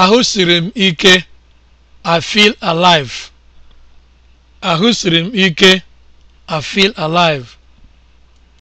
Ahụ m ike, I feel m ike, I feel alive.